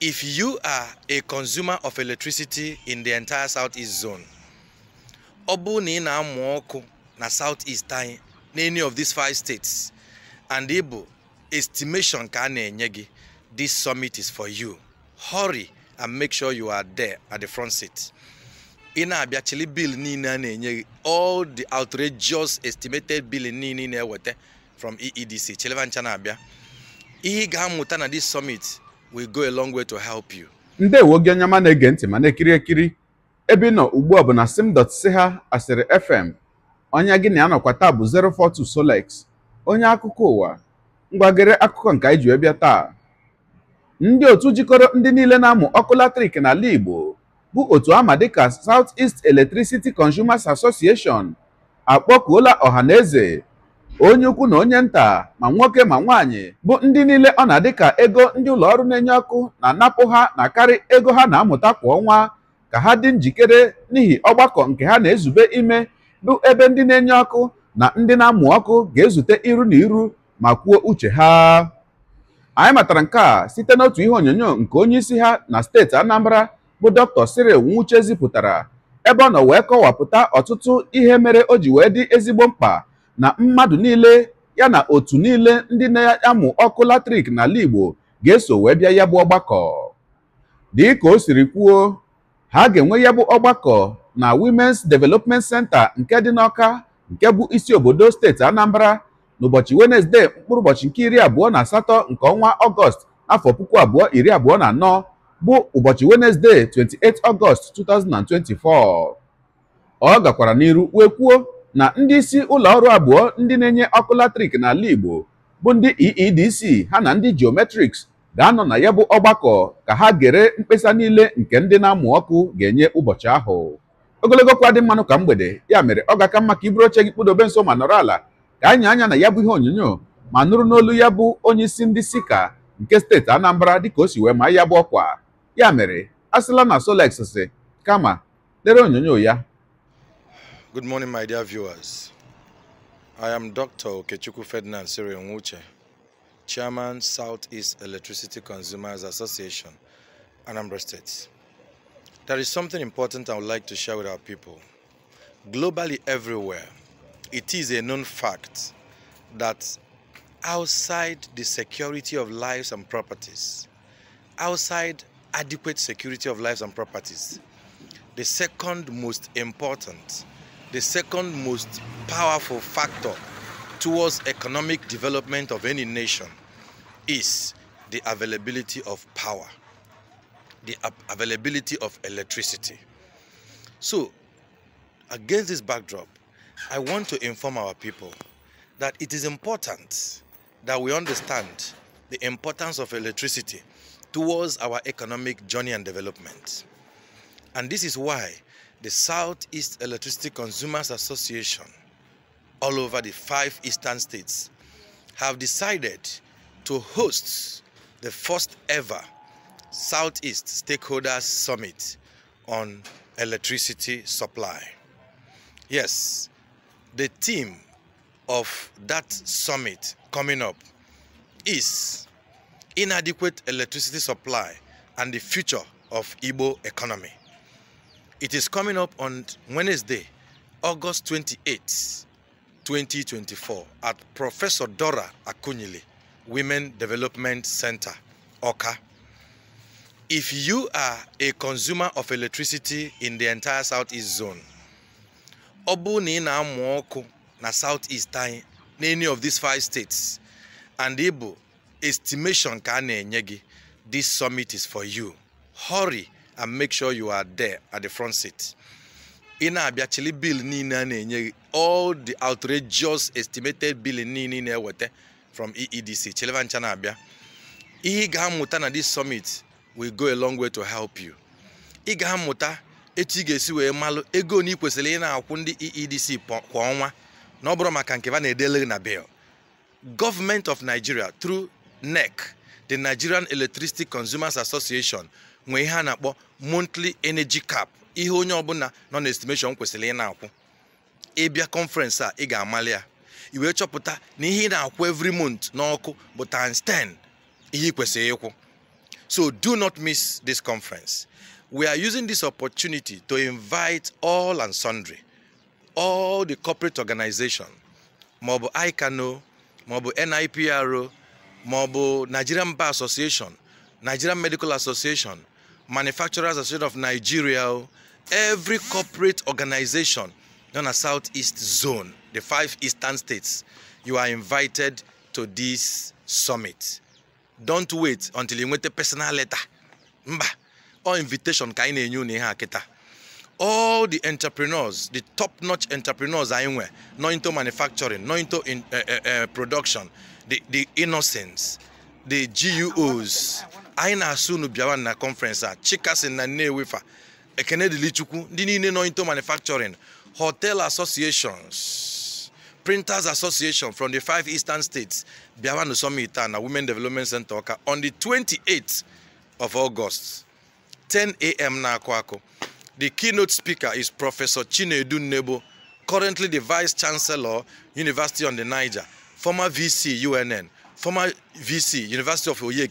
if you are a consumer of electricity in the entire southeast zone ọ bụrụ na ị na-amụ ọkụ na southeast anyị na any of these five states and ịbụ estimation ka a na-enye gị this summit is for you hurry and make sure you are there at the front seat ị na-abịa chili bill niile a na-enye gị all the outrageous estimated bill niile ị na-eweta from eedc chilivancha na-abịa ihe ị ga-amụta na this summit will go a long way to help you. ndewo gị onye ma na-ege ntị ma na-ekiri ekiri ebe ị nọ ugbu a bụ na sim.siha asịrị fm onye gị na ya nọkwa taa bụ 042 Solex onye akụkọ ụwa ngwagere akụkọ nke anyị ji bịa taa ndị otu jikọrọ ndị niile na-amụ ọkụ latrik n'ala Igbo bụ otu ama dịka South East Electricity Consumers Association akpọkuola ọha na eze onye ukwu na onye nta ma nwoke ma nwaanyị bụ ndị niile ọ na-adị ka ego ndị ụlọ ọrụ na-enye ọkụ na-anapụ ha na karị ego ha na-amụta kwa ọnwa ka ha dị njikere n'ihi ọgbakọ nke ha na-ezube ime bụ ebe ndị na-enye ọkụ na ndị na-amụ ọkụ ga-ezute iru na iru ma kwuo uche ha anyị matara nke a site n'otu ihe onyonyo nke onye isi ha na steeti Anambra bụ Dr. Cyril Nwuche zipụtara ebe ọ nọ wee kọwapụta ọtụtụ ihe mere o ji wee dị ezigbo mkpa na mmadụ niile ya na otu niile ndị na-amụ ọkụ latrik n'ala Igbo ga-eso wee bịa ya bụ ọgbakọ ka o siri kwuo ha ga-enwe ya bụ ọgbakọ na Women's Development Center nke dị n'Ọka nke bụ isi obodo steeti Anambra n'ụbọchị Wenezdee mkpụrụ ụbọchị nke iri abụọ na asatọ nke ọnwa Ọgọst afọ puku abụọ iri abụọ na anọ bụ ụbọchị Wenezdee 28 Ọgọst 2024 ọ gakwara n'iru wee kwuo na ndị isi ụlọ ọrụ abụọ ndị na-enye ọkụ latrik n'ala Igbo bụ ndị EEDC ha na ndị Geometrics ga-anọ na ya bụ ọgbakọ ka ha gere mkpesa niile nke ndị na-amụ ọkụ ga-enye ụbọchị ahụ ogologo kwa dị mmanụ ka mgbede ya mere ọ ga-aka mma ka iburu oche gị kpụdobe nso ma nọrọ ala ka anyị anya na ya bụ ihe onyonyo ma nụrụ n'olu ya bụ onye isi ndị sika nke steeti Anambra dịka o si wee ma ya bụ ọkwa ya mere asịla na Solex si kama lere onyonyo ya Good morning, my dear viewers. I am Dr. Okechuku Ferdinand Siriongwuche, Chairman, Southeast Electricity Consumers Association, Anambra State. There is something important I would like to share with our people. Globally everywhere, it is a known fact that outside the security of lives and properties, outside adequate security of lives and properties, the second most important the second most powerful factor towards economic development of any nation is the availability of power, the availability of electricity. So, against this backdrop, I want to inform our people that it is important that we understand the importance of electricity towards our economic journey and development. And this is why the Southeast Electricity Consumers Association all over the five eastern states have decided to host the first ever Southeast Stakeholders Summit on electricity supply. Yes, the theme of that summit coming up is inadequate electricity supply and the future of Igbo economy. It is coming up on Wednesday, August 28, 2024, at Professor Dora Akunyili Women Development Center, Oka. If you are a consumer of electricity in the entire Southeast zone, obu ni na ị na-amụ Southeast any of these five states and ịbụ estimation kane a this summit is for you. Hurry! and make sure you are there at the front seat ị na-abịa chili bill niile a na-enye gị all the outrageous estimated bill niile na-eweta from EEDC chiliva ncha na-abịa ihe ga-amụta na this summit will go a long way to help you ị ga-amụta etu ga-esi wee malụ ego na ị kwesịrị na-akwụ ndị EEDC kwa ọnwa na ọ bụrụ ba na-edele na bill Government of Nigeria through NEC the Nigerian Electricity Consumers Association nwee ihe a na-akpọ monthly energy cap ihe onye ọbụla nọ na estimation kwesịrị ị na-akwụ ịbịa conference a ị ga-amalị ya i wee chọpụta na ihe ị na-akwụ every month n'ọkụ bụ times ihe ị kwesịrị ịkwụ so do not miss this conference we are using this opportunity to invite all and sundry all the corporate organization maọbụ ICANO maọbụ NIPRO maọbụ Nigerian mba Association Nigerian Medical Association Manufacturers Association of Nigeria, oh, every corporate organization in the Southeast Zone, the five eastern states, you are invited to this summit. Don't wait until you get a personal letter. Mba, or invitation All the entrepreneurs, the top-notch entrepreneurs anyị nọ into manufacturing, nọ into in, uh, uh, uh, production, the, the the GUOs anyị na-asụ unu bịawa na conference a chikasin na Nnewi fa ekene dilichukwu ndị niile nọ into manufacturing hotel associations printers association from the five eastern states bịawa na summit a na women development center ọka on the 28th of august 10 a.m. na-akụ akụ the keynote speaker is professor chinedu nnebo currently the vice chancellor university on the niger former vc unn former vc university of oye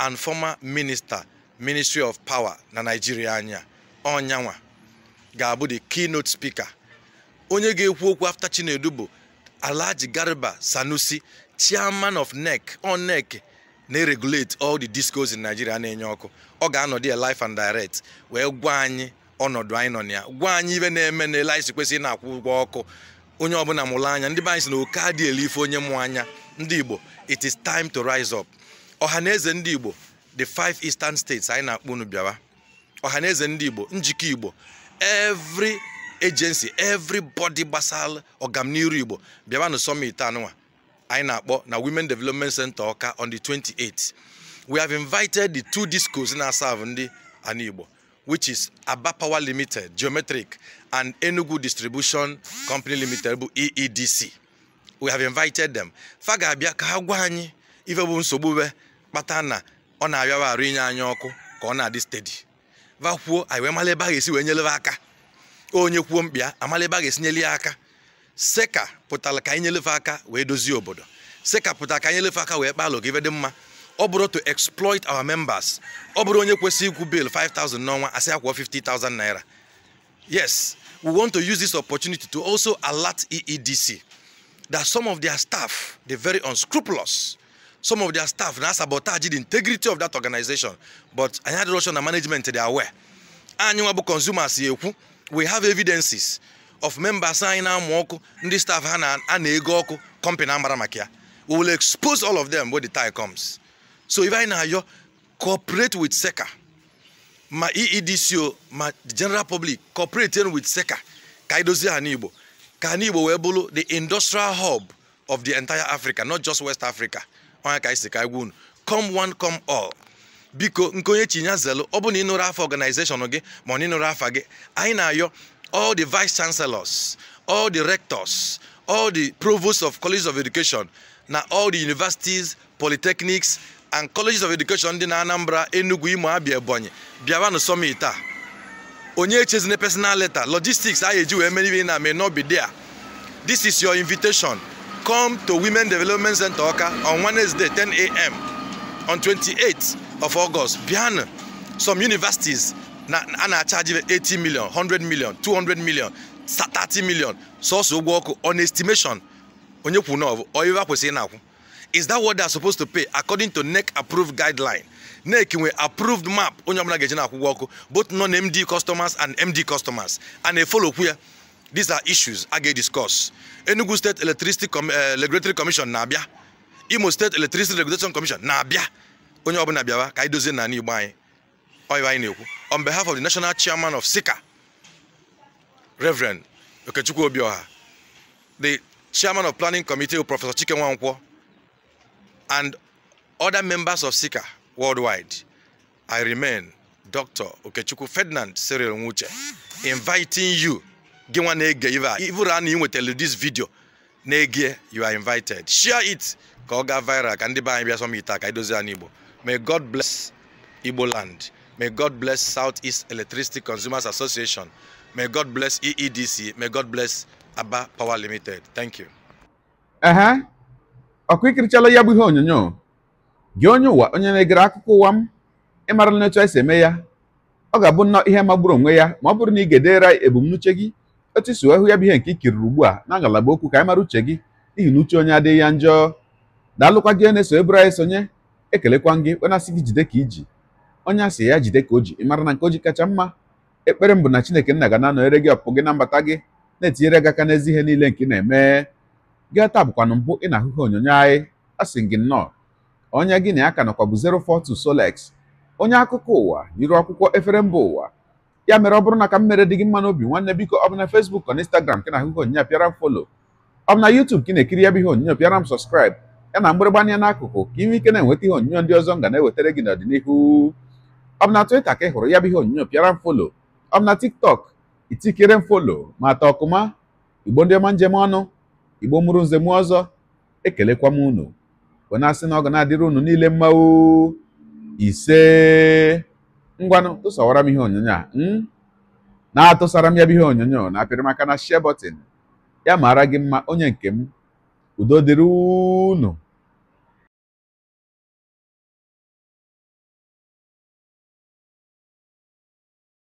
and former minister ministry of power na nigeria anya onyanwa ga-abụ the keynote speaker onye ga-ekwu okwu afta chinedu bụ alhaji garba sanusi chairman of nec NEC na-regulate all the discos in nigeria na-enye ọkụ ọ ga anọ ya life and direct wee gwa anyị ọnọdụ anyị nọ na ya gwa anyị ibe na-eme na ele anyị kwesịrị na-akwụ ụgwọ ọkụ onye ọbụla mụrụ anya ndị be anyị si na oke ife onye mụ anya ndị Igbo it is time to rise up ọha na eze ndị Igbo the five eastern states anyị na-akpọ unu bịawa ọha na ndị Igbo njikọ Igbo every agency everybody gbasara ọganiru Igbo bịawa na summit anụwa, anyị na-akpọ na Women Development Center Ọka on the 28th we have invited the two discos na-aserve ndị ana Igbo which is Aba Power Limited Geometric and Enugu Distribution Company Limited bụ EEDC we have invited them fa ga-abịa ka ha gwa anyị ife bụ nsogbu be kpata na ọ na-abịawa arụ inye anyị ọkụ ka ọ na-adị stedi va kwuo anyị wee mara ebe a ga-esi wee nyelebe aka onye kwuo mkpịa amala ebe a ga-esi nyele ya aka seka pụtara ka anyị nyelefe aka wee dozie obodo seka pụtara ka anyị nyelefe aka wee kpalụ ka ife dị mma ọ bụrụ to exploit our members ọ bụrụ onye kwesịrị ikwu bill 5000 n'ọnwa asị akwụọ 50000 naira yes we want to use this opportunity to also alert EEDC that some of their staff, they're very unscrupulous. Some of their staff now sabotage the integrity of that organization. But I had Russian management, they are aware. And consumers, we have evidences of members anyị na this staff ha na-ego company amara maka we will expose all of them when the time comes so if I na-ayọ cooperate with SECA ma EEDCO ma the general public cooperating with SECA ka anyị dozie ha ka anyị Igbo wee bụrụ the industrial hub of the entire Africa not just West Africa onye ka anyị si ka gwa come one come all biko nke onye chinya zelu ọ bụ na ịnụrụ afa organization gị ma ọ na afa gị anyị na-ayọ all the vice chancellors all the rectors all the provosts of colleges of education na all the universities polytechnics and colleges of education dị na Anambra Enugu Imo Abia Ebonyi bịawanụ summit a onye echezina personal letter logistics a ga-eji wee mere ihe na may not be there this is your invitation come to women development center oka on wednesday 10 a.m on 28 of august bịanụ some universities na a na-achaji 80 million 100 million 200 million 30 million sọsọ ụgwọ ọkụ on estimation onye kwuru na ọ bụ oyiva kwesịrị na-akwụ is that what they are supposed to pay according to NEC approved guideline na nwe approved map onye ọbụla ga-eji na-akwụgwọ ọkụ both non-MD customers and MD customers a na-efolokwu ya these are issues a ga discuss. Enugu State Electricity eh, Regulatory Commission na-abịa Imo State Electricity Regulation Commission na-abịa onye ọbụla bịawa ka anyị dozie n'ala Igbo anyị ọyịwa anyị na-ekwu on behalf of the national chairman of Sika, Reverend Okechukwu Obioha the chairman of planning committee Professor Chike Nwankwo and other members of Sika. worldwide. I remain Dr. Okechukwu Ferdinand Cyril Nwuche inviting you gị nwa na-ege this video you are invited share it ka viral ka ndị be anyị bịa may God bless Igbo land may God bless Southeast Electricity Consumers Association may God bless EEDC may God bless Aba Power Limited thank you. Uh huh. ya bụ ihe gị onye ụwa onye na-egere akụkọ ụwa m ịmara na etu anyị si eme ya ọ ga-abụ nnọọ ihe magburu onwe ya ma ọ bụrụ na ị ga-edera ebumnuche gị otu isi hụ ya bụ ihe nke ikiriri ugbu a na ngalaba okwu ka anyị mara uche gị n'ihi na uche onye adịghị ya njọ daalụkwa gị na-eso eburu anyị sonye ekelekwa gị asị gị jide ka iji onye asị ya jide ka o ji ịmara na nke o ji kacha mma ekpere m bụ na chineke nna ga na-anọnyere gị ọpụpụ gị na mbata gị na-etinyere gị aka n'ezi ihe niile nke ị na-eme gị taa bụkwa mbụ ị na-ahụhụ onyonyo anyị asị gị nnọọ onye gị na ya ka nọkwa bụ 042 Solex onye akụkọ ụwa yiri akwụkwọ efere mba ụwa ya mere ọ bụrụ na ka m mere dị gị mma n'obi nwanne biko ọ bụ na Facebook na Instagram ka na-ahụ ihe onyinye pịara m folo ọ bụ na YouTube ka ị na-ekiri ya bụ ihe onyinye pịara m sọskraịb ya na mgbịrịgba anya n'akụkụ ka inwe ike na-enweta ihe onyinye ndị ọzọ nga na-ewetara gị n'ọdịnihu ọ bụ na twita ka ị hụrụ ya bụ ihe onyinye pịara m folo ọ bụ na TikTok itikere m folo ma ata ọkụma igbo ndị ọma njem ọnụ igbo mụrụ nze ọzọ ekelekwa m unu wee na-asị na ọ ga na-adịrị unu niile mma o ise ngwanụ tụsawara m ihe onyonyo a hmm? na-atụsara m ya bụ ihe onyonyo na-apịrị na share button ya maara gị mma onye nke m udo dịrị unu